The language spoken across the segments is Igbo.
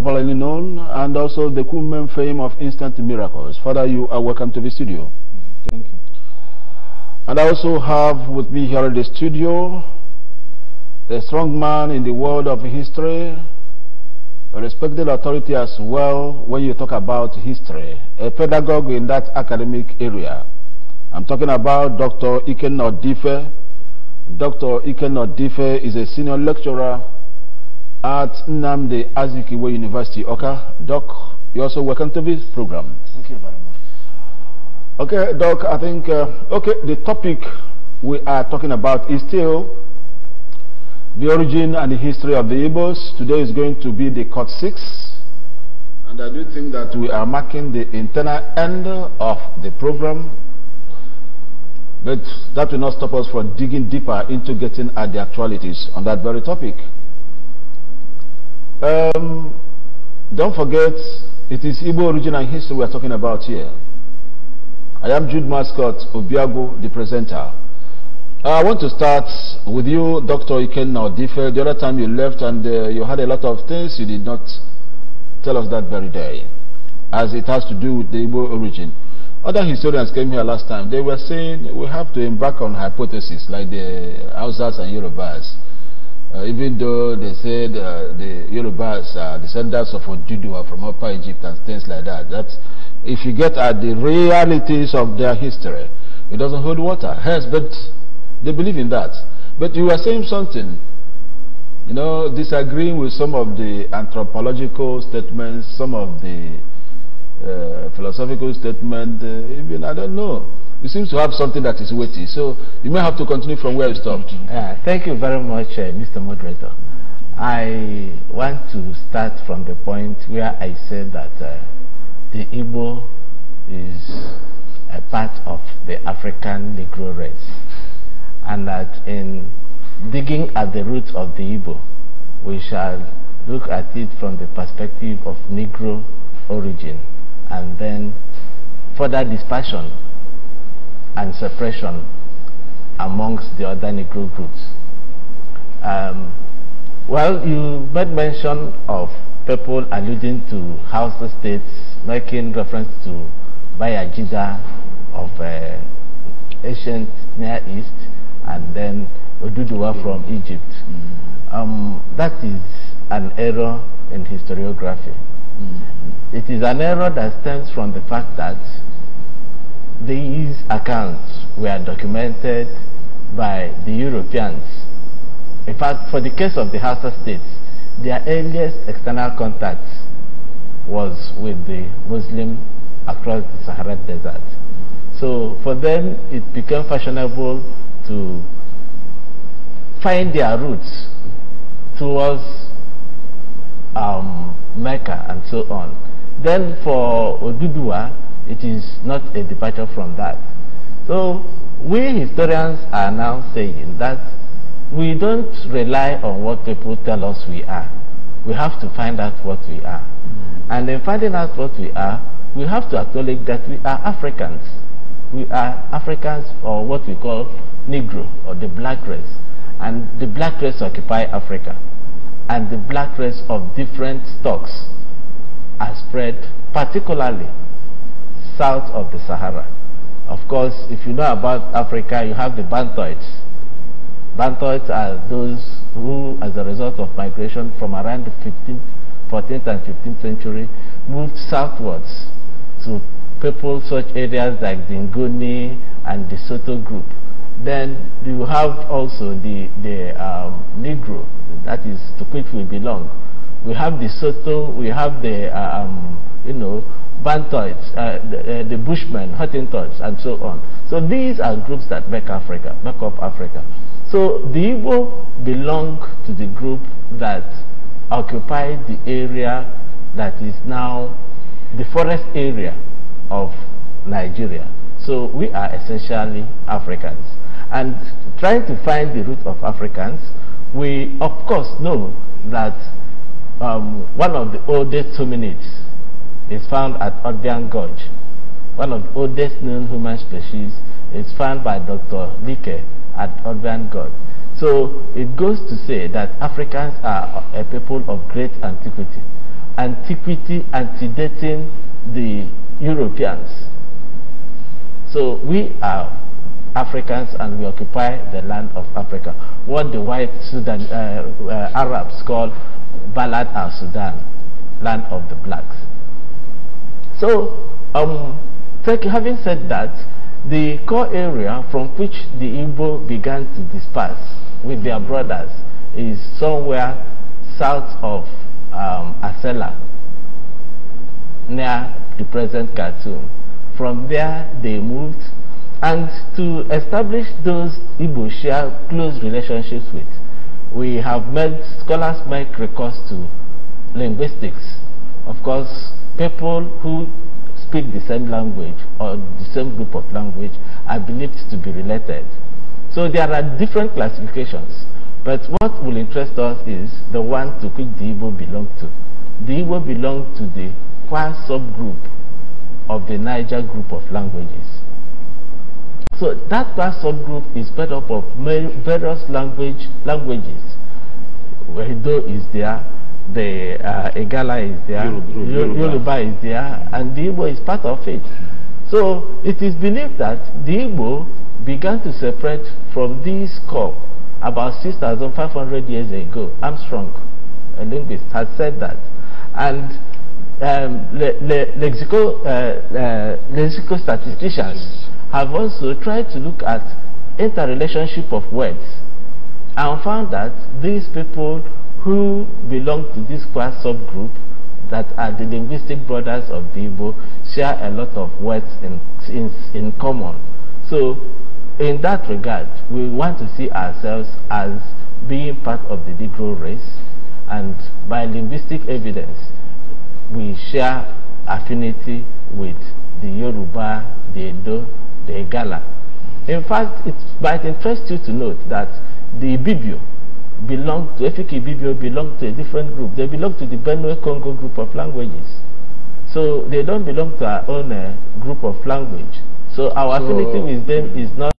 popularly known, and also the Kumem fame of instant miracles. Father, you are welcome to the studio. Thank you. And I also have with me here in the studio a strong man in the world of history, a respected authority as well when you talk about history, a pedagogue in that academic area. I'm talking about Dr. Ikenodife. Dr. Ikenodife is a senior lecturer at Namde Azikiwe University, okay, Doc, you're also welcome to this program. Thank you very much. Okay, Doc, I think, uh, okay, the topic we are talking about is still the origin and the history of the Igbos. Today is going to be the Cut 6. And I do think that we are marking the internal end of the program. But that will not stop us from digging deeper into getting at the actualities on that very topic. Um, don't forget, it is Igbo origin and history we are talking about here. I am Jude Mascot Obiago, the presenter. Uh, I want to start with you, Dr. Iken Naudife. The other time you left and uh, you had a lot of things you did not tell us that very day, as it has to do with the Igbo origin. Other historians came here last time. They were saying we have to embark on hypotheses like the Hausas and Yorubas. Uh, even though they said uh, the Yorubas are descendants of Odudua from Upper Egypt and things like that, that's, if you get at the realities of their history, it doesn't hold water. Yes, but they believe in that. But you are saying something, you know, disagreeing with some of the anthropological statements, some of the uh, philosophical statements, uh, even, I don't know you seem to have something that is weighty. So you may have to continue from where you stopped. Uh, thank you very much, uh, Mr. Moderator. I want to start from the point where I said that uh, the Igbo is a part of the African Negro race, and that in digging at the roots of the Igbo, we shall look at it from the perspective of Negro origin and then further dispersion and separation amongst the other Negro groups. Um, well, you made mention of people alluding to Hausa states making reference to Bayajida of uh, ancient Near East and then Oduduwa mm-hmm. from Egypt. Mm. Um, that is an error in historiography. Mm. It is an error that stems from the fact that these accounts were documented by the Europeans. In fact, for the case of the Hausa states, their earliest external contact was with the Muslim across the Sahara desert. So for them, it became fashionable to find their roots towards um, Mecca and so on. Then for Odudua, it is not a departure from that. So we historians are now saying that we don't rely on what people tell us we are. We have to find out what we are. Mm. And in finding out what we are, we have to acknowledge that we are Africans. We are Africans or what we call Negro or the black race. And the black race occupy Africa. And the black race of different stocks are spread particularly south of the Sahara. Of course, if you know about Africa, you have the Bantoids. Bantoids are those who, as a result of migration from around the 15th, 14th and 15th century, moved southwards to people such areas like the Nguni and the Soto group. Then you have also the, the um, Negro, that is to which we belong, we have the Soto, we have the, uh, um, you know, Bantoids, uh, the, uh, the, Bushmen, Hottentots, and so on. So these are groups that make Africa, make up Africa. So the Igbo belong to the group that occupied the area that is now the forest area of Nigeria. So we are essentially Africans. And trying to find the root of Africans, we of course know that um, one of the oldest hominids is found at Odian Gorge. One of the oldest known human species is found by Dr. Dicke at Odian Gorge. So it goes to say that Africans are a people of great antiquity. Antiquity antedating the Europeans. So we are Africans and we occupy the land of Africa. What the white Sudan, uh, uh, Arabs call Balad al Sudan, land of the blacks. So, um, having said that, the core area from which the Igbo began to disperse with their brothers is somewhere south of um, Asela, near the present Khartoum. From there, they moved and to establish those Igbo share close relationships with, we have made scholars make recourse to linguistics. Of course, people who speak the same language or the same group of language are believed to be related. So there are different classifications, but what will interest us is the one to which the Igbo belong to. The Igbo belong to the Kwa subgroup of the Niger group of languages. So that, that subgroup is made up of various language languages. Wedo is there, the uh, Egala is there, Yoruba. Yoruba. is there, and the Igbo is part of it. So it is believed that the Igbo began to separate from this core about 6,500 years ago. Armstrong, a linguist, had said that. And um, lexical, uh, uh, statisticians have also tried to look at interrelationship of words and found that these people who belong to this class subgroup that are the linguistic brothers of the Igbo share a lot of words in, in, in common. So in that regard, we want to see ourselves as being part of the Negro race and by linguistic evidence, we share affinity with the Yoruba, the Edo, the In fact, it might interest you to note that the Ibibio belong to, Ibibio belong to a different group. They belong to the Benue-Congo group of languages. So they don't belong to our own uh, group of language. So our so, affinity with them is not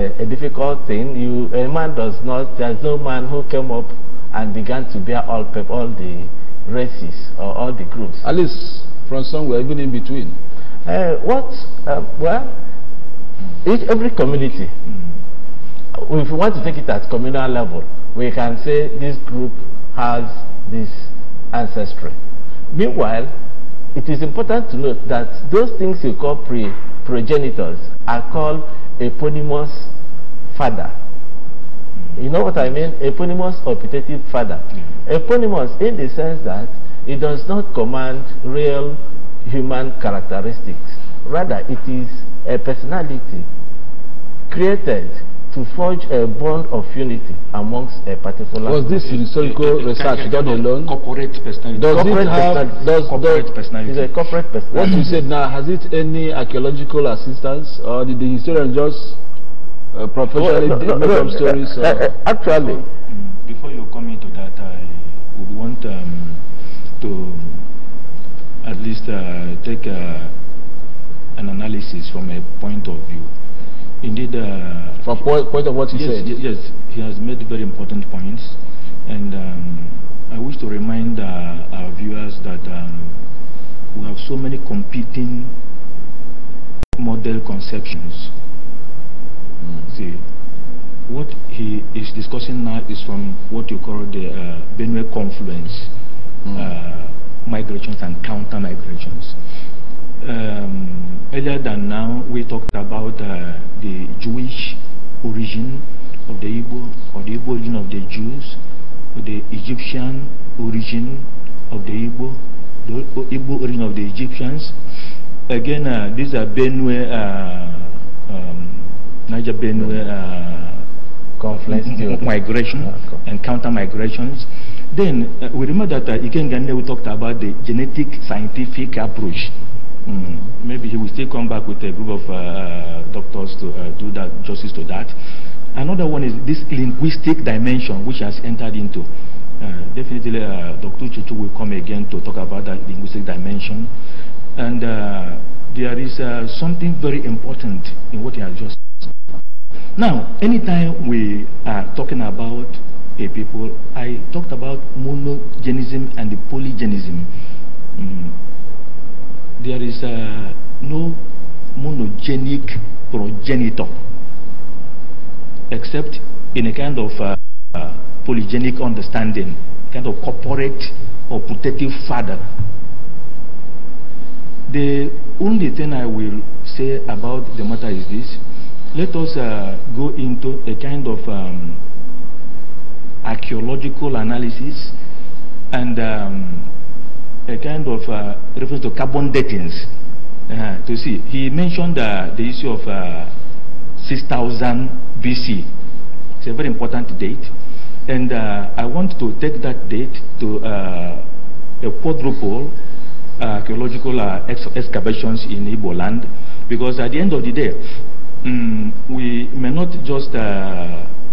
a difficult thing. You, a man does not, there's no man who came up and began to bear all, all the races or all the groups. At least from somewhere, even in between. Uh, what? Uh, well, each, every community, mm. if we want to take it at communal level, we can say this group has this ancestry. Meanwhile, it is important to note that those things you call pre progenitors are called eponymous father. You know what I mean? Eponymous or putative father. Mm-hmm. Eponymous in the sense that it does not command real human characteristics. Rather, it is a personality created to forge a bond of unity amongst a particular. Was this historical research done alone? Corporate personality. Does corporate it have Does, corporate personality? Is a corporate personality. What you said now has it any archaeological assistance, or did the historian just uh, professionally well, no, no, no, stories? Uh, uh, actually, before you come into that, I would want um, to at least uh, take uh, an analysis from a point of view. Indeed. Uh, From point, point of what he yes, said? Yes, he has made very important points. And um, I wish to remind uh, our viewers that um, we have so many competing model conceptions. Mm. See, what he is discussing now is from what you call the uh, Benue confluence, mm. uh, migrations and counter migrations. Um, earlier than now, we talked about uh, the Jewish origin of the Igbo, or the Igbo origin of the Jews, the Egyptian origin of the Igbo, the Igbo origin of the Egyptians. Again, uh, these are Benue, uh, um, Niger Benue uh, conflicts, migration, ah, and counter migrations. Then uh, we remember that uh, Ikenga we talked about the genetic scientific approach Mm. Maybe he will still come back with a group of uh, uh, doctors to uh, do that justice to that. Another one is this linguistic dimension which has entered into. Uh, definitely, uh, Dr. Chichu will come again to talk about that linguistic dimension. And uh, there is something very important in what he has just said. Now, anytime we are talking about a people, I talked about monogenism and polygenism. Mm there is uh, no monogenic progenitor except in a kind of uh, uh, polygenic understanding, kind of corporate or putative father. The only thing I will say about the matter is this. Let us uh, go into a kind of um, archaeological analysis and um, a kind of uh, reference to carbon datings uh, to see. He mentioned uh, the issue of uh, 6000 BC. It's a very important date. And uh, I want to take that date to uh, a quadruple archaeological ex excavations in Igbo land because at the end of the day, um, we may not just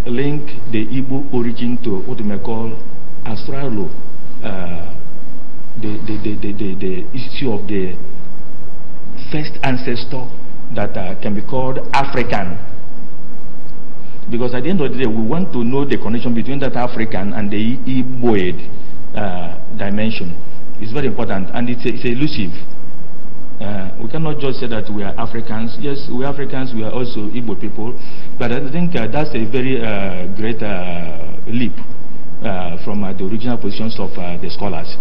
link the Igbo origin to what we may call Australo the, the, the, the, the, the issue of the first ancestor that uh, can be called African. Because at the end of the day, we want to know the connection between that African and the Iboid uh, dimension. It's very important and it's, it's elusive. Uh, we cannot just say that we are Africans. Yes, we are Africans, we are also Igbo people. But I think uh, that's a very uh, great uh, leap uh, from uh, the original positions of the scholars.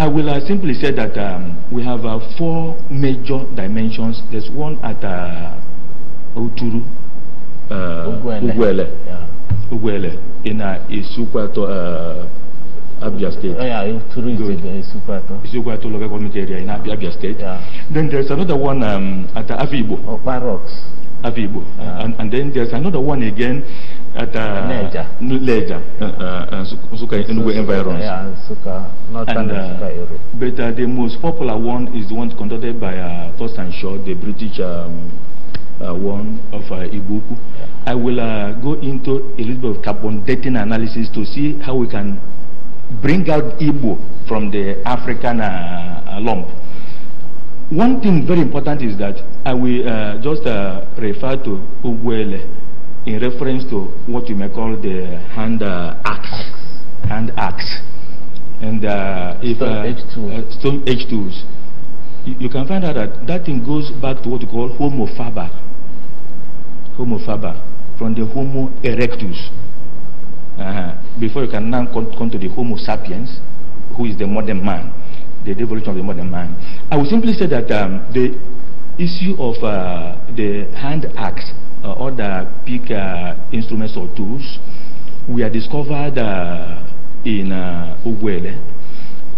I will uh, simply say that um, we have uh, four major dimensions. There's one at uh, Uturu, uh, Uguele, Uguele, yeah. Uguele in uh, Isukwato, uh, Abia State. Oh, yeah, Uturu Good. is the Isukwato. Isukwato local government area in Abia, Abia State. Yeah. Then there's another one um, at uh, Afibo. Oh, Parox. Afibo. Yeah. And, and then there's another one again at Niger. Uh, Niger uh, uh, uh, suka Enugu environs. Yeah, suka not and, But the most popular one is the one conducted by uh, First and Short, the British um, uh, one of uh, Ibuku. Yeah. I will uh, go into a little bit of carbon dating analysis to see how we can bring out Ibo from the African uh, lump. One thing very important is that I will just refer to Ugwele in reference to what you may call the hand uh, axe, hand axe, and uh, if stone, uh, h Uh, tools, you, you, can find out that that thing goes back to what you call Homo faber, Homo faber, from the Homo erectus. Uh, before you can now come, come to the Homo sapiens, who is the modern man, the evolution of the modern man. I would simply say that um, the issue of uh, the hand axe uh, other big uh, instruments or tools were discovered uh, in uh, Uguele.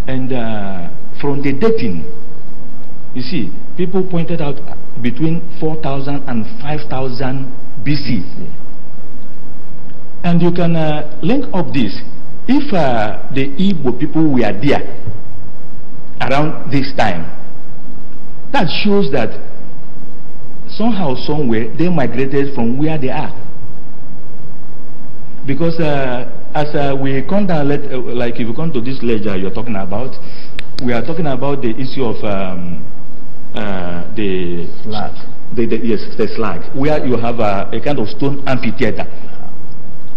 And uh, from the dating, you see, people pointed out uh, between 4,000 and 5,000 BC. And you can uh, link up this. If the Igbo people were there around this time, that shows that somehow, somewhere, they migrated from where they are. Because uh, as uh, we come down, let, uh, like if you come to this ledger you're talking about, we are talking about the issue of um, uh, the slag. The, the, yes, the slag, where you have a, a kind of stone amphitheater.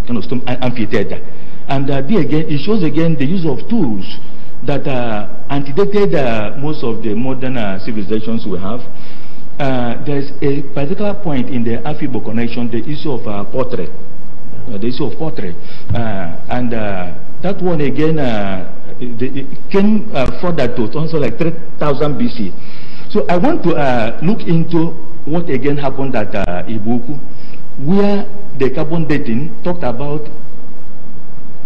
Kind of stone amphitheater. And uh, there again, it shows again the use of tools that uh, antedated uh, most of the modern civilizations we have. Uh, there's a particular point in the Afibo connection, the issue of uh, portrait, uh, the issue of portrait, uh, and uh, that one again the, came further to also like 3000 BC. So I want to look into what again happened at uh, Ibuku, where the carbon dating talked about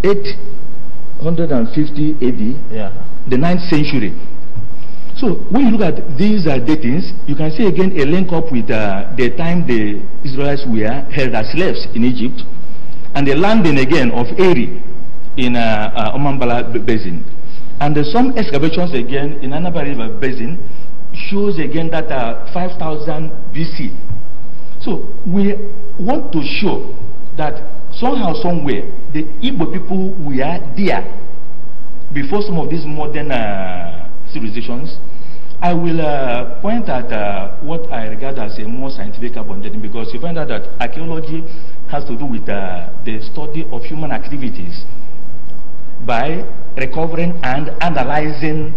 850 AD, yeah. the 9th century. So when you look at these uh, datings, you can see again a link up with uh, the time the Israelites were held as slaves in Egypt and the landing again of Eri in uh, uh Omambala Basin. And uh, some excavations again in Anaba River Basin shows again that uh, 5000 BC. So we want to show that somehow, somewhere, the Igbo people were there before some of these modern civilizations. I will uh, point at uh, what I regard as a more scientific carbon dating because you find out that archaeology has to do with uh, the study of human activities by recovering and analyzing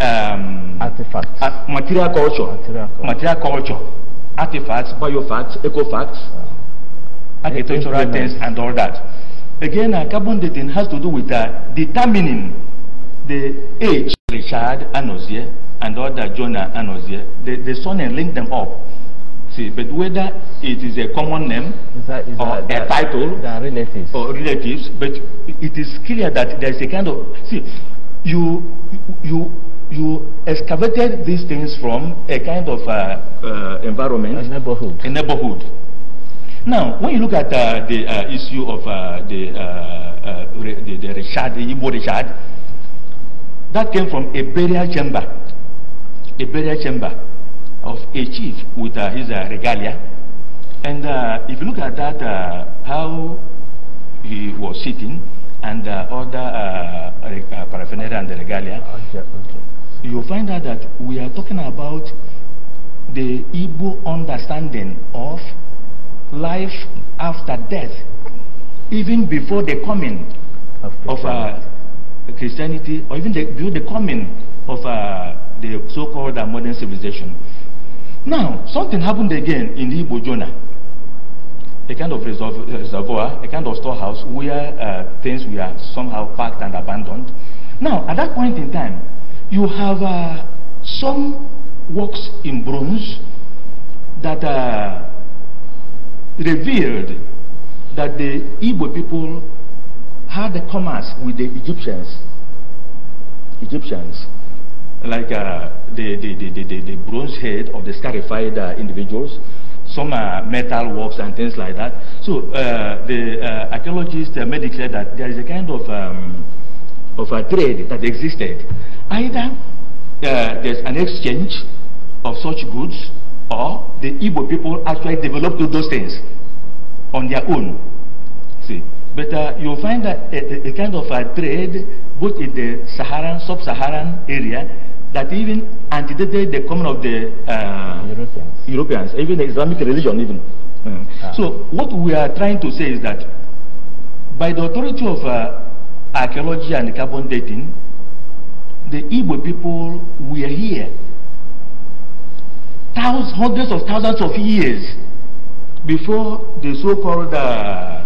um, artifacts, uh, material culture, material culture, material culture, artifacts, biofacts, ecofacts, yeah. Uh-huh. architectural things, and all that. Again, uh, carbon dating has to do with uh, determining the age Richard Anozie and other Jonah Anozie, they, they saw and linked them up. See, but whether it is a common name is that, is or that, a title relatives. or relatives, but it is clear that there is a kind of see, you you you excavated these things from a kind of uh, uh, environment, a neighborhood, a neighborhood. Now, when you look at uh, the uh, issue of uh, the, uh, the, the Richard, the Igbo Richard, that came from a burial chamber, a burial chamber of a chief with uh, his uh, regalia. And uh, if you look at that, uh, how he was sitting and uh, other uh, paraphernalia and the regalia, ah, okay, you'll find out that we are talking about the Igbo understanding of life after death, even before the coming of, of uh, Christianity or even the, the coming of uh, the so-called uh, modern civilization. Now, something happened again in the Igbo Jonah. A kind of reservoir, a kind of storehouse where uh, things were somehow packed and abandoned. Now, at that point in time, you have uh, some works in bronze that uh, revealed that the Igbo people had the commerce with the Egyptians. Egyptians, like uh, the, the, the, the, the bronze head of the scarified uh, individuals, some uh, metal works and things like that. So uh, the uh, archaeologists uh, made declare that there is a kind of, um, of a trade that existed. Either uh, there's an exchange of such goods or the Igbo people actually developed those things on their own. See. But uh, you'll find that a, a, kind of a uh, trade both in the Saharan, sub-Saharan area that even antedated the coming of the uh, Europeans. Europeans, even the Islamic religion even. Uh, ah. So what we are trying to say is that by the authority of uh, archaeology and carbon dating, the Igbo people were here thousands, hundreds of thousands of years before the so-called uh,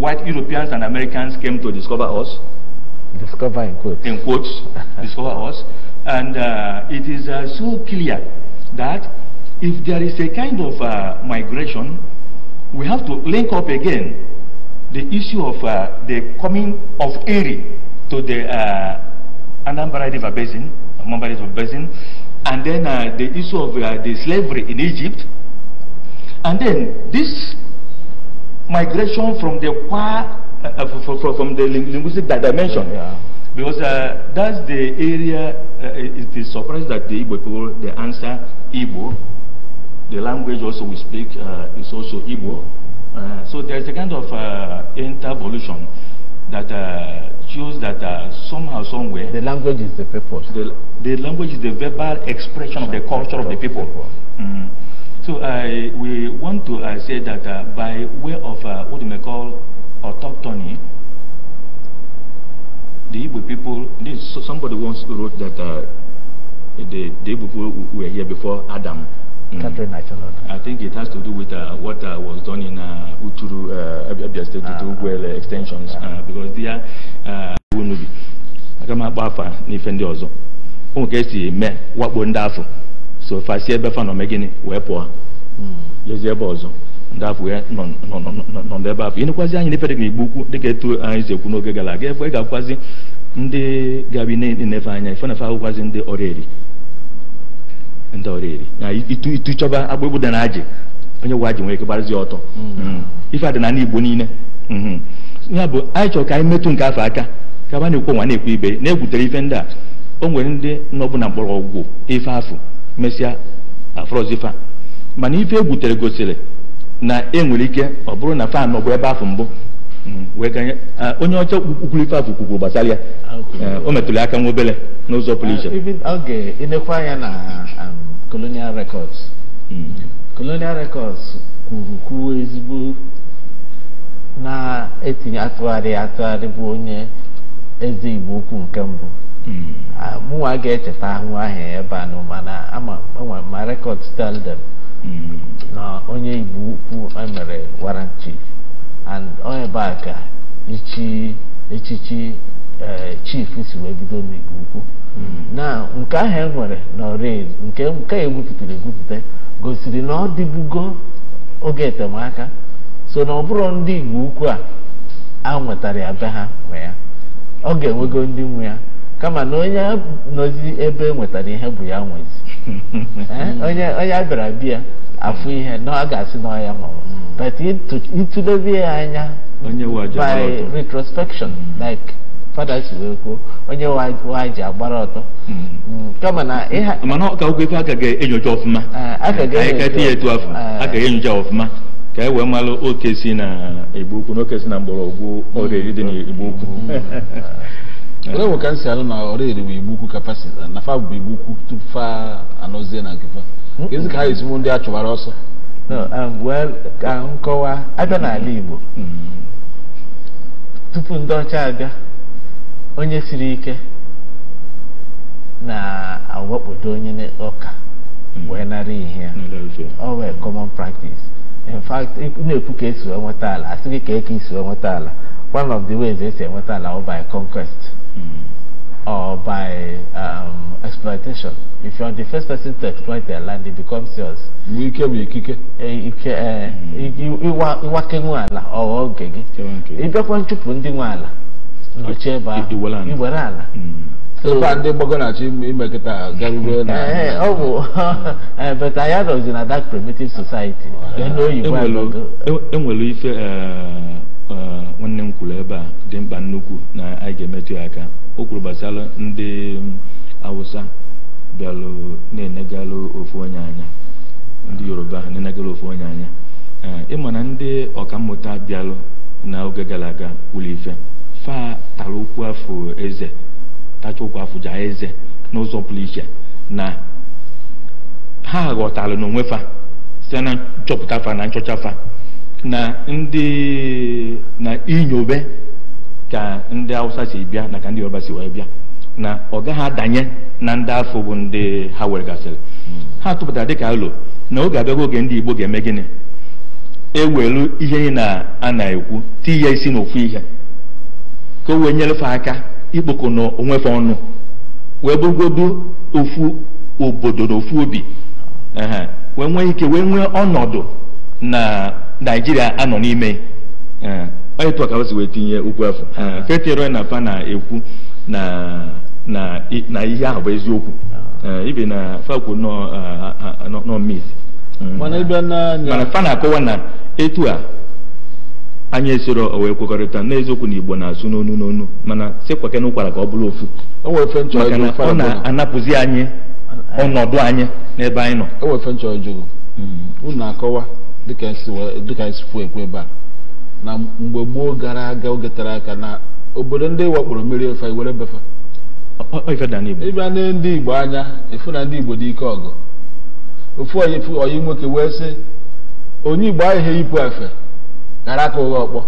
white Europeans and Americans came to discover us. Discover in quotes. In quotes, discover us. And uh, it is uh, so clear that if there is a kind of uh, migration, we have to link up again the issue of uh, the coming of Erie to the uh, Anambra River Basin, Anambra River Basin, and then uh, the issue of the slavery in Egypt. And then this migration from the qua, uh, uh, from, from, the linguistic dimension. Yeah, Because uh, that's the area, uh, it is surprised that the Igbo people, they answer Igbo. The language also we speak uh, is also Igbo. Uh, so there's a kind of intervolution that shows that somehow, somewhere... The language is the purpose. The, the language is the verbal expression of the culture of the people. Mm -hmm. So I we want to uh, say that uh, by way of uh, what you may call autochthony, the Igbo people, this, somebody once wrote that uh, the, the Igbo people were here before Adam. Mm. I think it has to do with uh, what was done in uh, Uturu, Abia State, Uturu ah, extensions, because they are Wunubi. Agama Bafa, Nifendi Ozo. Ụmụ ka esi eme wakpo ndị afọ so fasi ebe fa nọ mee gịnị wee pụọ lezie ebe ọzọ ndị afọ nọ nọ n'ebe afọ ịnekwazi anyị n'efere igbu ukwu dịka etu anyị si ekwu n'oge gara aga ebe ị ga-akwụkwazị ndị gabi na-enefe anya ife ndị ọrịa ndị ọrịa na itu chọba hmm. Hmm. dị na onye gwa nwere ike ọtọ ife adị na igbo niile hmm. ya bụ anyị chọrọ ka anyị metụ nke afọ aka ka ba na-ekwu nwa na ibe na-egwutere ife ndị a o nwere ndị nọbụ na ife afọ mesịa afrọzifa mana ife egwutere gosiri na enwere ike ọ bụrụ na fan ọ bụ ebe afọ mbụ mm, onye ọcha ife afọ kwukwuru gbasara ya eh, o metụrụ aka nwa n'ụzọ pụrụ iche uh, oge ịnekwa anya na um, colonial records hmm. colonial records kwuru kwuo ezigbo na-etinye atụgharị atụgharị bụ onye eze igbo ukwu nke mbụ hmm. mụnwa ga-echeta ahụ ahụ ebe a mana ama ma rekọd tell dem. na onye igbo ukwu emere warrant chief and onye ebe a ka ichi echichi eh, chief si wee bido n'igbo ukwu hmm. na nke ahụ e nwere n'ọrịa nke nke egwupụtara egwupụta gosiri na ọ dịbugo oge etemaka so na ọ bụrụ ndị igbo ukwu a a nwetara ya be ha nwe ya ọ ga-enwego ndị nwe ya kama na onye nọzi ebe e nwetara ihe bụ ya nwezi eh, onye onye abịara bịa afụ ihe na ọ ga-asị na ọya mụrụ but ịtụlezie ya anya by retrospection hmm. like fada si wee kwuo onye wa ji agbara ọtọ hmm. Hmm, kama na mana ọka ụkwụ ife aka ga-enyocha ọfụma anyị ah, ya etu afọ aka ga-enyocha ọfụma ka e wee malụ oke si na igbo ukwu na oke si na mgbọrọgwụ ọrịa eri dị na igbo ukwu ole nwe ka m si alụ na ọra erebe igbu ukwu kapasiti na fa bụ igbu ukwu tupu fa anọzie na nke fa ezi ka ha esi mụ ndị a chụbara ọsọ um, ka m kọwaa abịa mm-hmm. n'ala igbo mm-hmm. tupu ndị ọcha abịa onye siri ike na-awakpodo onye ụka. Mm-hmm. wee nara ihe ya ọ wee common practice in fact na-ekwu ka esi enweta ala asịghị ka eke esi enweta ala one of the ways esi enweta ala ọ by conquest mm. or by um, exploitation. If you are the first person to exploit their land, it becomes yours. Wike bu ikike. Ike iwa iwake nwe ala ọghọ oge gị. Ịbịakwa nchụpụ ndị nwe ala nọchie ebe ahụ iwere ala. Sokwa ndị gbagọ na-achọ imekịta garube na. Ee ọ bụ but I had a that primitive society. Enwere ife. Eh, nwanne m kwuru ebe a dị mkpa nnukwu na anyị ga-emetụ ya aka o kwuru gbasara ndị awụsa bịalụ na-enegalụ ofu onye anya ndị yoruba na-enegalụ ofu onye anya eh, ịma na ndị ọkammụta bịalụ n'oge gara aga kwuru ife fa tara ụkwụ afọ eze tacha ụkwụ afọ ja eze n'ụzọ pụrụ iche na ha ghọtara n'onwe fa site na nchọpụta fa na nchọcha fa na ndị na inyobe ka ndị hausa si bịa na ka ndị yoruba si wee bịa na ọ gaghị adanye na ndị afọ bụ ndị ha gasịrị. Hmm. ha tụpụtara dịka alo na oge abịago oge ndị igbo ga-eme gịnị ewelu ihe na a na-ekwu ti ya isi n'ofu ihe ka o wee nyerefe aka ikpoko na onwefe ọnụ wee bụgodo ofu obodo na ofu obi hmm. wee nwee ike wee nwee ọnọdụ na naijiria anọ n'ime onye tụọ ka o si wee tinye okwu afọ fetiere e na fa na-ekwu na ihe ahụ bụ eziokwu ibe na fakwu nọ mit mm. mana fa na-akọwa na etu a anya esoro wee kwekọrịta n'eziokwu na igbo na-asụ n'onu n'onu mana sekwa na ụkwara ka ọ bụrụ ofu maka na ọ na-anapụzi anyị ọnọdụ anyị n'ebe anyị nọ dịka esi fuo e ekwe ebe a na mgbe gboo gara aga oge tere aka na obodo ndị wakporo mmiri ofe were befe ịbịa na ndị igbo anya efu na ndị igbo dị ike ọgụ ofu oyi nwoke wee sị onye igbo ahịhịa ipu efe gara aka ụgha ọkpọ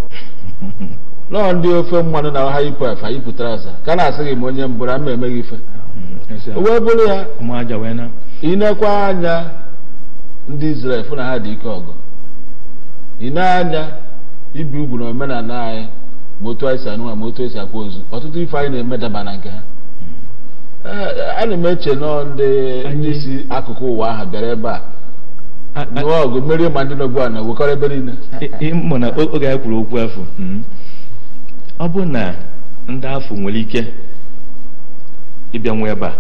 nọọ ndị ofe mmanụ na ọha ipu efe yipụtara aza ka na-asị gị ma onye mbụrụ ama emeghị ife mm, wee bụrụ ya ị nekwa anya ndị Izrel fụ na ha dị ike ọgụ ị na-anya ibi ugwu na omenala anyị ma otu anyị si anụ ma otu esi akwa ozu ọtụtụ ife anyị na-eme daba na nke ha eh, ana m eche nọ ndị si akụkụ ụwa ahụ bịara ebe a nụọ ọgụ merie ma ndị nọgbu a na wekọrọ ebe niile ịmụ na oge anyị kwuru okwu afọ hmm, ọ bụ na ndị afọ nwere ike ịbịa nwe ebe a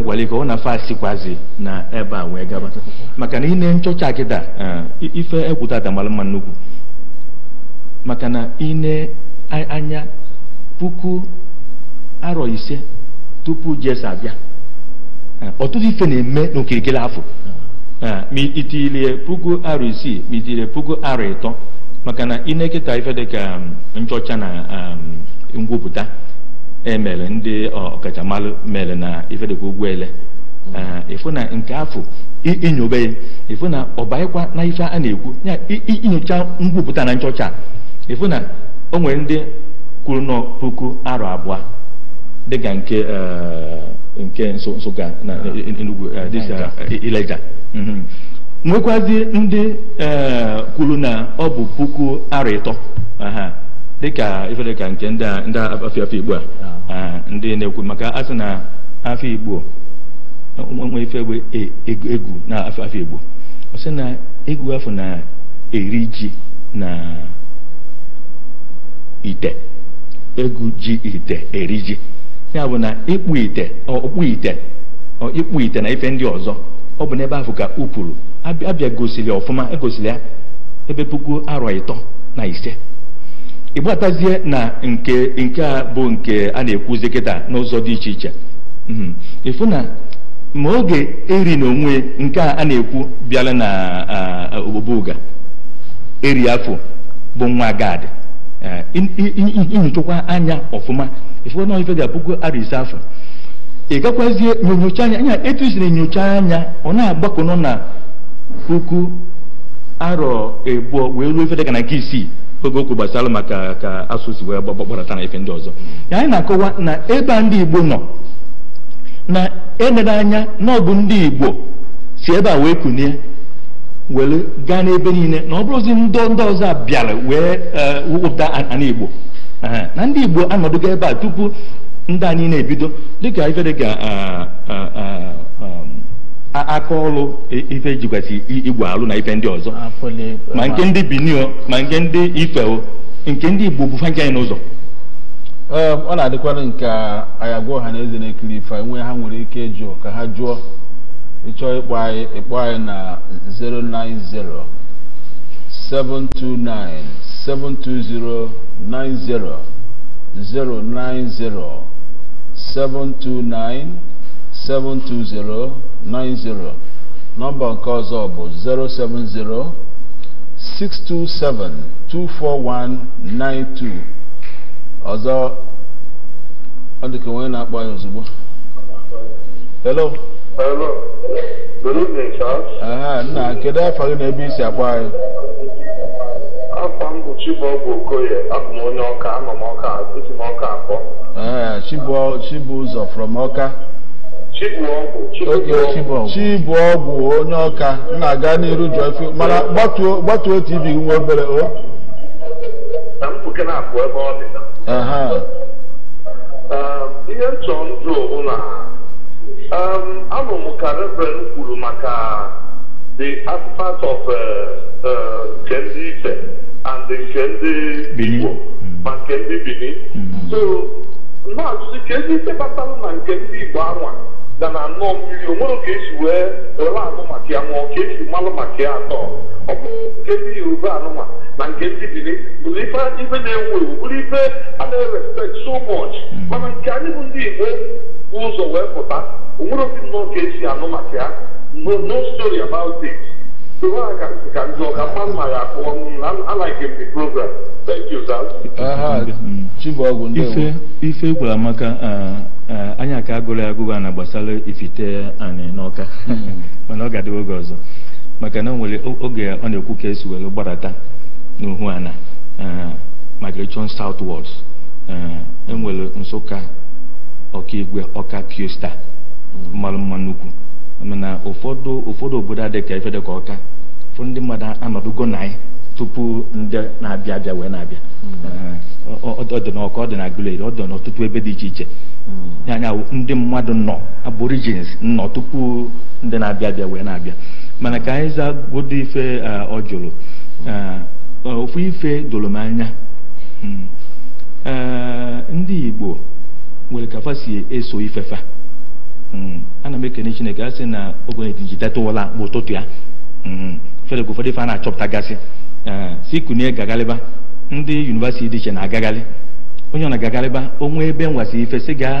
gwara ka ọ na fasikwazi na ebe a wee gaba maka na ine nchọcha akịda ife egwu tata mara mma nnukwu maka na ine anya puku arọ ise tupu Jesu abịa ah, ọtụtụ ife na-eme n'okirikiri afọ ah. Ah, ma itilie puku arọ isii ma itilie puku arọ ịtọ maka na ine ife dị ka um, nchọcha na um, ngwupụta emere ndị ọkachamara mere na ifedekwa mm. aha ịfụ na nke afọ inyobe ya ịfụ na ọbaịkwa na ife a na-ekwu ya inyocha nkwupụta na nchọcha ịfụ na o nwere ndị kwuru nọ puku aro abụọ dịka nke eh, nke nsụka na ah. enugwu eh, eh, ileja mm-hmm. nwekwazie ndị kwuru na ọ bụ puku aro ịtọ dịka ifere ka nke ndị afọ afọ igbo a ndị na-ekwu maka asị na afọ igbo nwe ife egbe egwu na afọ afọ igbo ọ sị na egwu afọ na-eri ji na ite egwu ji ite eri ji ya bụ na ịkpụ ite ọkpụ ite ịkpụ ite na ife ndị ọzọ ọ bụ n'ebe afọ ka ụpụrụ abịa gosiri ọfụma egosiri ya ebe puku arọ ịtọ na ise ịgbatazie na nke nke a bụ nke a na-ekwuzi kịta n'ụzọ dị iche iche mhm. ịfụ na ma oge eri na onwe nke a na-ekwu bịala na obobuga eri afọ bụ nwa gad e, inyochakwa anya ọfụma ịfụ na ife ga-apụgo ara ise afọ ị gakwazie nyocha anya anya etu isi na anya ọ na-agbakọnọ na puku arọ ebuo wee ruo ife dịka na nke isii oge okwu gbasara maka ka asụsụ wee gbakpọrọta na ife ndị ọzọ anyị na-akọwa na ebe a ndị igbo nọ na enere anya n'ọbụ ndị igbo si ebe a wee kunie were gaa n'ebe niile na ọ bụrụzi ndị ndị ọzọ bịara wee eh, wụpụta ana igbo na ndị igbo anọdụgo ebe a tupu ndị a niile ebido dịka ife dịka ah, ah, ah, aka ọlụ ife alụ na ife ndị ọzọ ma nke ndị binio ma nke ndị nke ndị igbo bụ fanke n'ụzọ ọ na-adịkwara nke anyị agwa ọha na eze na-ekiri ife ha nwere ike ịjụ ka ha jụọ ịchọ ịkpọ anyị ịkpọ anyị na 09072972090 090 729 72090 nọmba nke ọzọ bụ 070 627-24192 ọzọ ọ dịka onye na-akpọ ya ozugbo hello hello good evening Charles aha nna kedu afa gị na ebe isi akpọ anyị afa m bụ Chibuọgwụ Okoye abụ m onye ọka anọ m m ọka akpọ ee Chibu ụzọ from ọka ọgwụ onye ọka na-aga n'iru jụọ mana gbatuo tv nwa obere o um, ihe nchọ ndụ ụlọ um, anụ m ka reverend kwuru maka the artifact of uh, uh, nke ndị ife and nke ndị igbo ma nke ndị bini mm-hmm. so na-ajụzi ka ezi ife kpatara na nke ndị igbo anwa na na aṅụọ mmiri onwere esi e wee were anụ maka ya ṅụọ ka esi malụ maka ya atọ ọ bụ nke dị yoruba anụma na nke ndị biri bụrụ ife na-ewu ewu bụrụ ife a na-erespekt so much mana nke anyị bụ ndị igbo bụ ụzọ wee pụta onwere nwere obi nnọọ ka esi anụ maka ya no story about it ka ndụ I like the program. Thank you, ife ife gwara maka anyị ka agụrụ ya agụgụ na gbasara ifite anyị n'ọka hmm. mana ọ ga-adịwa oge ọzọ maka na nwere oge ọ na-ekwu ka esi were gbarata n'uhu ana migration southwards enwere nsụka ọkaigwe ọka piosta hmm. mmanụ mma nnukwu mana ụfọdụ ụfọdụ obodo adịka ife dịka ọka fụ ndị mmadụ anọdụgo na anyị tupu ndị na-abịa abịa wee na-abịa hmm. ọ dị n'ọka ọ dị ọ dị n'ọtụtụ ebe dị iche iche hmm. anya ndị mmadụ nọ aborigins nọ tupu ndị na-abịa abịa wee na-abịa mana ka anyị za zagodo ife ọ jụrụ ofu ife doro m anya hmm. ndị Igbo nwere kafa si eso ifefa Mm-hmm. ana m ekene chineke a sị na oge ejidetawala mgbe ụtụtụ ya fedek ụfọdụ ife a na-achọpụtagasị si kunie gagaliba ndị yunivasiti dị iche na agagali onye ọ na-agagalịba onwe ebe nwasị ife si ga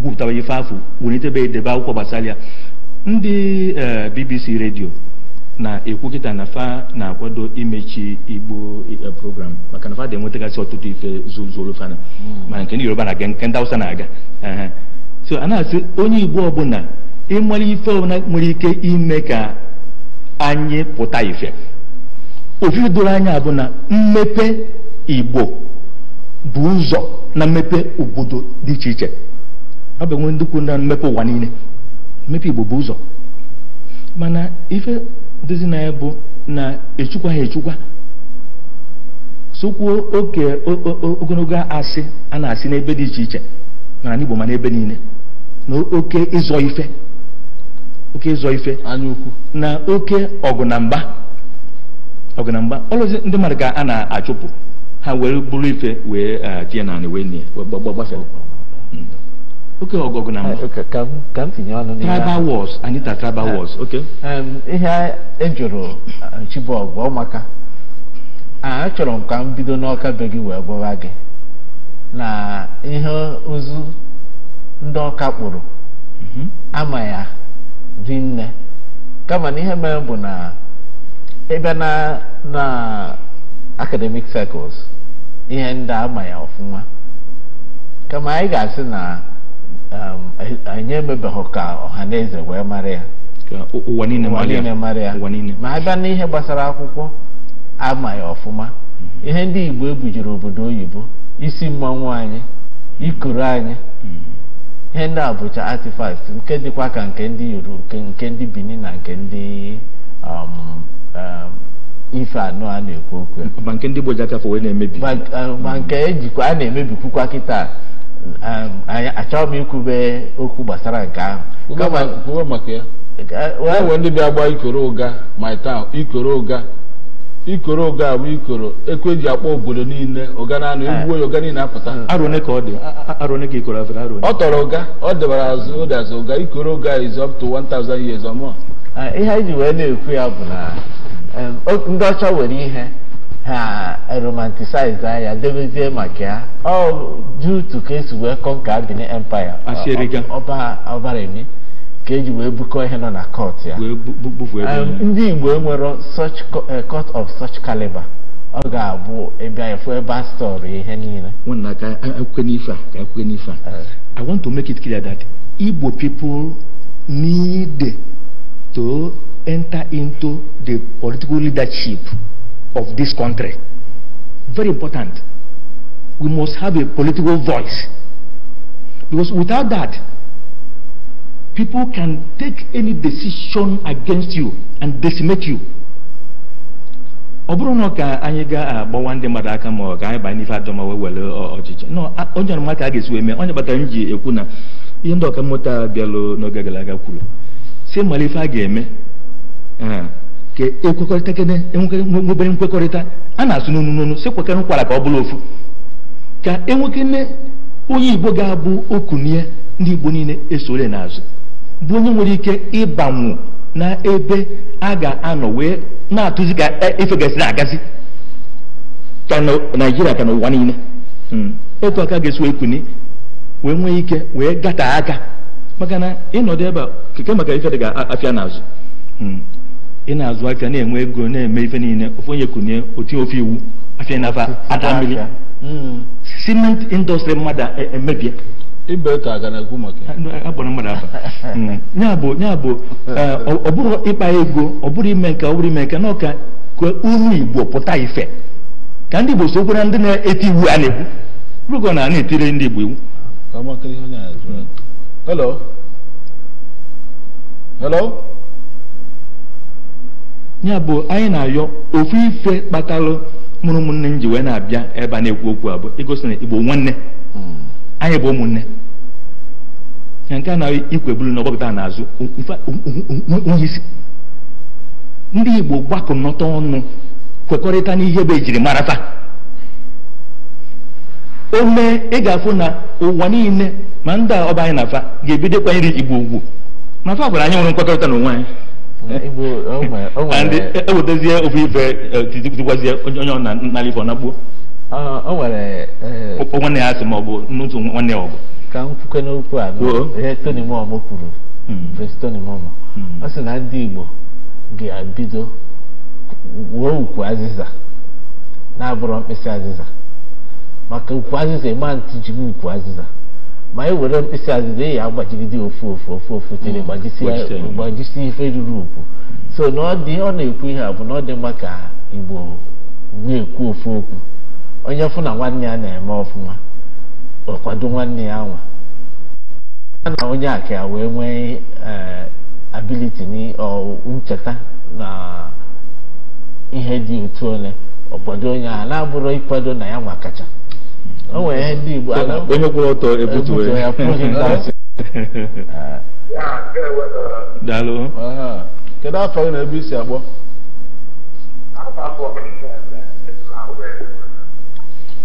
gwupụtaba ife afọ wulitebe edebe akwụkwọ gbasara ya ndị uh, bbc redio na-ekwu kịta na fa na-akwado imechi igbo uh, program maka na fa dị tụtụ ọtụtụ ife zuzuru fana mm. ma nke ndị yoruba na-aga nke ndị na-aga uh-huh. so a na-asị onye igbo ọbụla ịmara ife ọbụla nwere ike ime ka anyị pụta ife ofufe doro anya bụ na mmepe igbo bụ ụzọ na mmepe obodo dị iche iche ọ bụ enwe ndị na mmepe ụwa niile mmepe igbo bụ ụzọ mana ife dozi na bụ na echukwa ha echukwa sokwuo oke ogologo asị a na-asị n'ebe dị iche iche na igbo ma n'ebe niile na oke ịzọ ife oke ịzọ ife na oke ọgụ na mgba ọgụ na mgba ọlụzi ndị mmadụ ka a na-achụpụ ha wee bụrụ ife wee tie na anị wee nie gbafe oke ọgụ na mgba ka m tinye ọnụ n'ihe tribal wars anyị ta tribal wars oke ihe e chibọg bụ maka achọrọ m ka m bido n'ọka be gị wee gwara gị na ihe ozu ndị ọka kpụrụ mhm. ama ya dị nne kama na ihe mere bụ na ebe na na academic circles ihe ndị ama ya ọfụma kama anyị ga-asị na um, anyị emebeghị ka ọha na eze wee mara ya ụwa niile mara ya ma a na n'ihe gbasara akwụkwọ ama ya ọfụma mhm. ihe ndị Igbo ebujiri obodo oyibo isi mmanwụ anyị ikuru anyị mhm. ihe ndị a bụcha artifact nke dịkwa ka nke ndị yoruba nke ndị benin na nke ndị um, um, ife anọ a na-ekwu okwu um, ma nke ndị gboji aka wee na-emebi ma nke ejikwa a na-emebikwukwa kịta achọghị m ikwube okwu gbasara nke ahụ kama maka ya e ndị bịa gba ikoro ụga ma ikoro ụga ikoro oge bụ ikoro ekwe ji akpọ obodo niile ụga na-anụ eh. egbuo ya ụga niile apụta ọ tọrọ ụga ọ debara azụ ụda azụ ụga ikoro oge is up to 1000 years or more eh, ihe anyị ji wee na-ekwu ya bụ na eh, ndị ọcha nwere ihe ha romanticize anya debezie maka ya ọ jụụ to ka esi wee kọnka Benin Empire ọbara eme ka eji wee bukọ ihe nọ na kọt ya um, ndị igbo enwero such uh, court of such caliber ọ ga-abụ ebe efu ebe a stọrọ ihe niile nwanna ka akwụkwọ n'ife a ka want to make it clear that igbo people need to enter into the political leadership of this country very important we must have a political voice because without that people can take any decision against you and decimate you ọ bụrụ na ka anyị ga-agbawa ah, ndị mmadụ aka ma ọ ka anyị baa n'ife ajọ ma wee were ah, ọchịchị ah, onye ọrụ maka a ga-esi wee mee onye kpatara m ji ekwu na ihe ndị ọka mmụta bịalụ n'oge gara aga kwuru si mara ife a ga-eme ka ekwekọrịta kene e nwebere nkwekọrịta a na-asụ n'onu n'onu si kwekere nkwara ka ọ bụrụ ofu ka enwekene onye igbo ga-abụ ya ndị igbo niile esore n'azụ bụ onye nwere ike ịbanwu na ebe a ga-anọ wee na-atụzi ka ife e, gasị na-agazi ka na naijiria ka n'ụwa niile hmm. otu aka ga-esi wee kuni wee nwee ike wee gata aka maka na ịnọdụ ebe keke maka ife dị ga afịa n'azụ hmm. ị na-azụ aka na-enwe ego na-eme ife niile ofe onye kunie otu ofe iwu nafa hmm. cement mmadụ emebie e, ibe ka aga na-ekwu maka agbara mmadụ aba ya bụ ya bụ e, ọ bụrụ ịkpa ego ọ bụrụ ime nke ọ bụrụ ime nke na ọka ka uru igbo pụta ife ka ndị igbo so na ndị na-eti iwu a na-ekwu rugo na a na-etire ndị igbo iwu hello hello ya bụ anyị na-ayọ ofu ife kpatalụ mụrụ ụmụnne m ji wee na-abịa ebe a na-ekwu okwu abụ igosi na igbo nwanne hmm. anyị bụ ụmụnne ya nke a na ikwebulu na ọgbakọta n'azụ onye isi ndị igbo gbakọnọta ọnụ kwekọrịta n'ihe bụ ejiri marata ome ịga ị ga-afụ na ụwa niile ma ndị a ọba anyị na afa ga-ebido kwanyere igbo ugwu ma fa gwara anyị nwere nkwekọrịta na onwe anyị ewetezie ofe ife e, tikwazie onye ọ na-alifọ na gbuo Ah, ah, oh, eh, eh. o nwere nwanne ya asị ma ọ n'otu nwanne ya ọgụ ka m kwukwe n'okwu a ihe oh. Tony Mom kwuru Vince Tony Mom ọ sị na ndị Igbo ga-ebido wuo ukwu azịza na-abụrụ mkpịsị azịza maka ukwu azịza ịma ntị jiri ukwu azịza ma e were mkpịsị azịza eyi agbajigide ofu ofu ofu ofu tere gbajisi ife ruru ukwu so na ọ dị ọ na-ekwu ihe a bụ na ọ dị mma ka Igbo na-ekwu ofu okwu onye fụ na nwanne ya na-eme ọfụma kwado nwanne ya nwa a na onye a ka ya wee nwee eh, abiliti ncheta na ihe dị otu ole obodo onye ahụ na-abụrụ ịkwado na ya nwa kacha o nwere ihe ndị Igbo onye kwụrụ ọtọ ebutuwe ya pụghị ntazị kedu afọ gị na ebe isi agbọ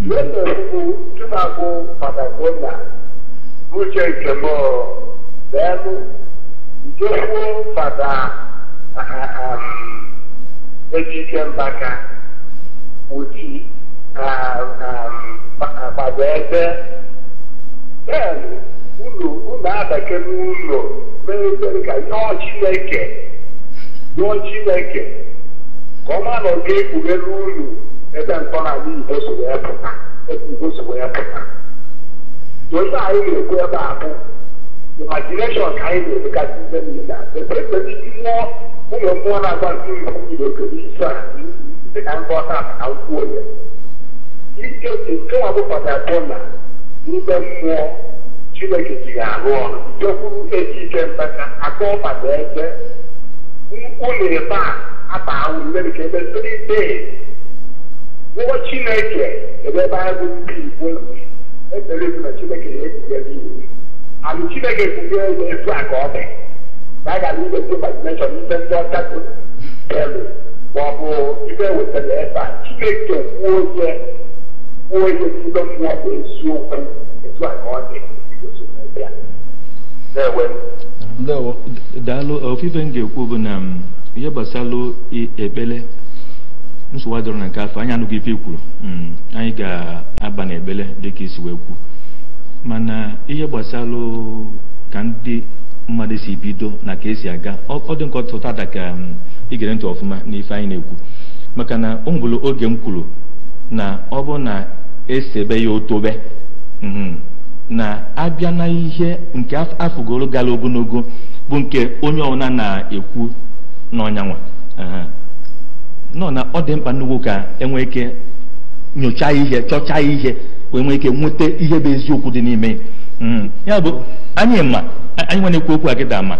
N'otu na Chukwu patagonia uche nke m nke kwuo Fada um, Ejike Mbaka uchi Fada Ebe daalụ ụlọ ụlọ abake n'ụlọ mere ka yọọ Chineke yọọ Chineke ka ọ ma na ọ ga-ekpughere unu ebe ntọrọ anyị ebe so wee pụta ebe igbo so wee pụta ofe anyị ga-ekwu ebe a bụ imagination ka anyị na-edekasị ibe niile ekpepeti mmụọ ụlọ mmụọ na-agba nke iwu nyere okere iso a dị ka ngwọta na nkwụ onye ike nke nwa bụkọta atọ na n'ime mmụọ chineke ji arụ ọrụ jekwuru eji ike mbata akọ maka ebe mkpu na ebe a ata ahụ mere ka ebe ndị dee ụgwọ chineke ebe ebe ndị igbo ekpere na chineke na-ekwugheri iwu alụ chineke ebe etu a ka ọ dị na a gara ndị imagination ndị ọcha bụ elu ma ọ bụ wetara ebe a chineke kwuo ihe kwuo ihe n'ime mmụọ bụ eziokwu etu a ka ọ dị daalụ ofufe m ga bụ na um, ihe nsogbu adịrọ na nke afọ anyị anụghị ife ikwuru e hmm, anyị ga-aba na ebele dịka isi wee kwuo mana ihe gbasara ka ndị mmadụ si bido na ka esi aga ọ dị nke ọtụtụ ada ka igere hmm, ntị ọfụma n'ife anyị na-ekwu maka na o oge m kwuru na ọ bụ na esebe ya otobe hmm, na-abịa na ihe nke afụgoro gara ogologo bụ nke onye ọbụla na-ekwu n'ọnyanwa nọ na ọ dị mkpa nnukwu ka enwee ike nyochaa ihe chọchaa ihe wee nwee ike nweta ihe bụ eziokwu dị n'ime hmm. ya bụ anyị ma anyị nwa na-ekwu okwu a kịta ma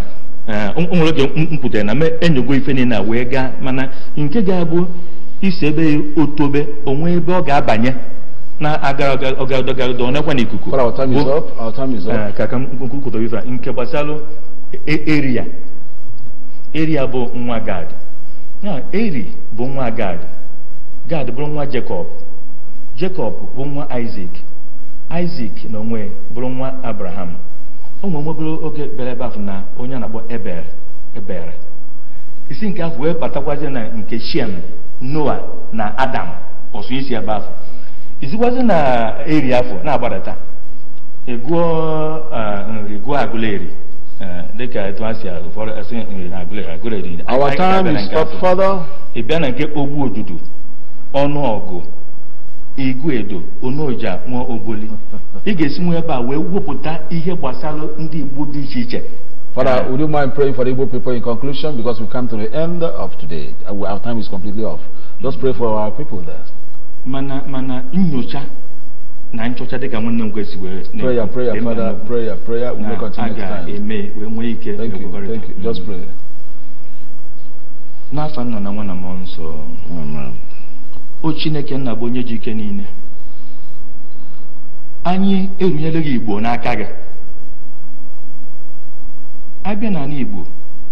eh, nwere oge m pụtara na m enyogo ife niile wee gaa mana nke ga-abụ isi ebe otobe onwe ebe ọ ga-abanye na-agaraọgadogarado aga nekwa na ikuku eh, ka ka kwukwuta ife nke gbasalụ eria e, eria bụ nwa gad na eri bụ nwa gad gad bụrụ nwa jekọb jekọb bụ nwa isak isak na onwe bụrụ nwa abraham ụmụ nwebere oge bịara ebe na onye na-akpọ ebere ebel isi nke ahụ wee na nke shem noa na adam ọsụ isi ebe isi isikwazi na eri afọ na-agbadata egụọ eh, nri gụọ agụleri Uh, our time is up Father. Ịbịa na nke ogbu ọnụ ọgụ, igwe edo, onoja, nwa oboli. Ị ga-esi nwe ebe a wee wepụta ihe gbasara ndị Igbo dị iche iche. Father, would you mind praying for the Igbo people in conclusion because we come to the end of today. Uh, our time is completely off. Just pray for our people there. Mana mana nyocha na nchọcha dịka nwanne m kwesị wee prayer father prayer prayer we will continue next eme wee nwee ike thank you thank you just pray n'afọ nna na nwa na mmụọ nsọ o chineke nna bụ onye ji ike niile anyị erunyela gị igbo n'aka gị abịa n'ala igbo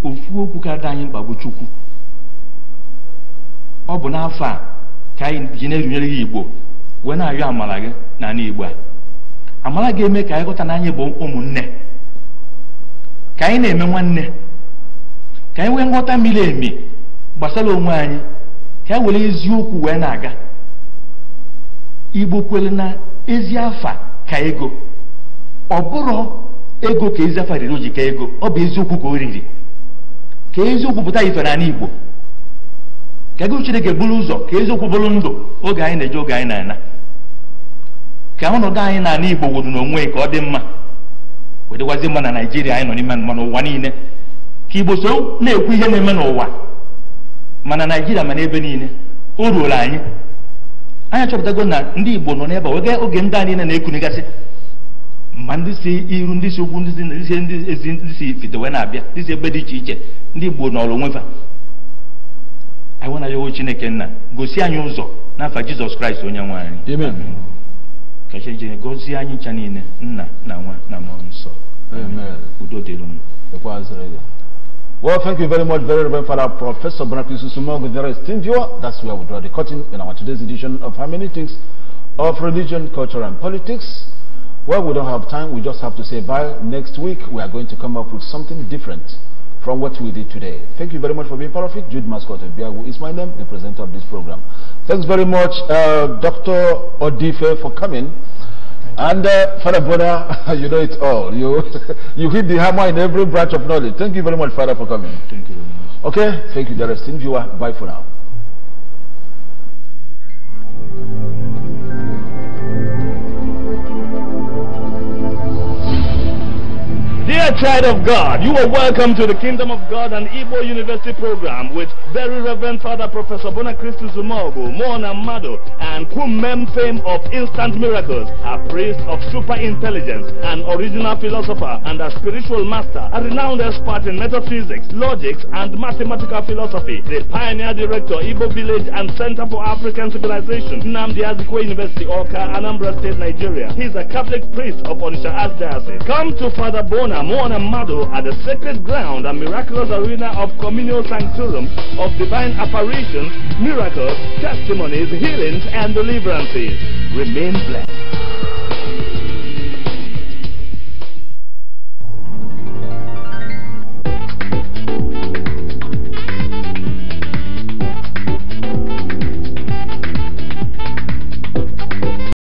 ofu okwu ka dị anyị mkpa bụ chukwu ọ bụ n'afọ a ka anyị ji na-erunyere gị igbo wee na-arịọ amara gị n'ala Igbo a amara ga-eme ka anyị ghọta na anyị bụ ụmụnne ka anyị na-eme nwanne ka anyị nwee nghọta miri emi gbasara onwe anyị ka anyị e were eziokwu wee na-aga Igbo kwere na ezi afa ka ego ọ bụrụ ego ka ezi afa riri o ka ego ọ bụ eziokwu ka o riri ka eziokwu pụta ife n'ala Igbo ka ego chineke buru ụzọ ka eziokwu bụrụ ndụ oge anyị na eje oge anyị na-ana ka ọnọdụ anyị na-ana igbo wuru n'onwe ka ọ dị mma wedịgwazi mma na naijiria anyị nọ n'ime mma n'ụwa niile ka igbo so na-ekwu ihe na-eme n'ụwa mana naijiria mana ebe niile o ruola anyị anyị achọpụtago na ndị igbo nọ n'ebe wege oge ndị a niile na-ekunigasị ma ndị si iru ndị si ukwu ndị si ezi ndị si ifite wee na-abịa ndị si ebe dị iche iche ndị igbo nọrọ onwe fa anyị nwenayawo chineke go gosi anyị ụzọ n'afa jizọs kraịst onye nwe anyị amen ka chineke gozie anyị ncha niile nna na nwa na mmụọ nsọ amen udo dịrị unu Well, thank you very much, very Reverend Father Professor Bonaparte Susumong with very esteemed viewer. That's where we draw the curtain in our today's edition of Hermeneutics of Religion, Culture and Politics. Well, we don't have time. We just have to say bye. Next week, we are going to come up with something different from what we did today. Thank you very much for being part of it. Jude Mascot Biagu is my name, the presenter of this program. Thanks very much, uh, Dr. Odife, for coming. And uh, Father Bona, you know it all. You you hit the hammer in every branch of knowledge. Thank you very much, Father, for coming. Thank you. Okay, thank you, dear viewer. Bye for now. Dear child of God, you are welcome to the Kingdom of God and Igbo University program with very Reverend Father Professor Bonacristus Zumogo, Mona Mado, and Kumem fame of instant miracles, a priest of super intelligence, an original philosopher, and a spiritual master, a renowned expert in metaphysics, logics, and mathematical philosophy, the pioneer director, Igbo Village and Center for African Civilization, Namdi Azikwe University, Oka, Anambra State, Nigeria. He's a Catholic priest of Onisha Az Diocese. Come to Father Bona Moana Mado at the sacred ground and miraculous arena of communal sanctorum of divine apparitions, miracles, testimonies, healings, and deliverances. Remain blessed.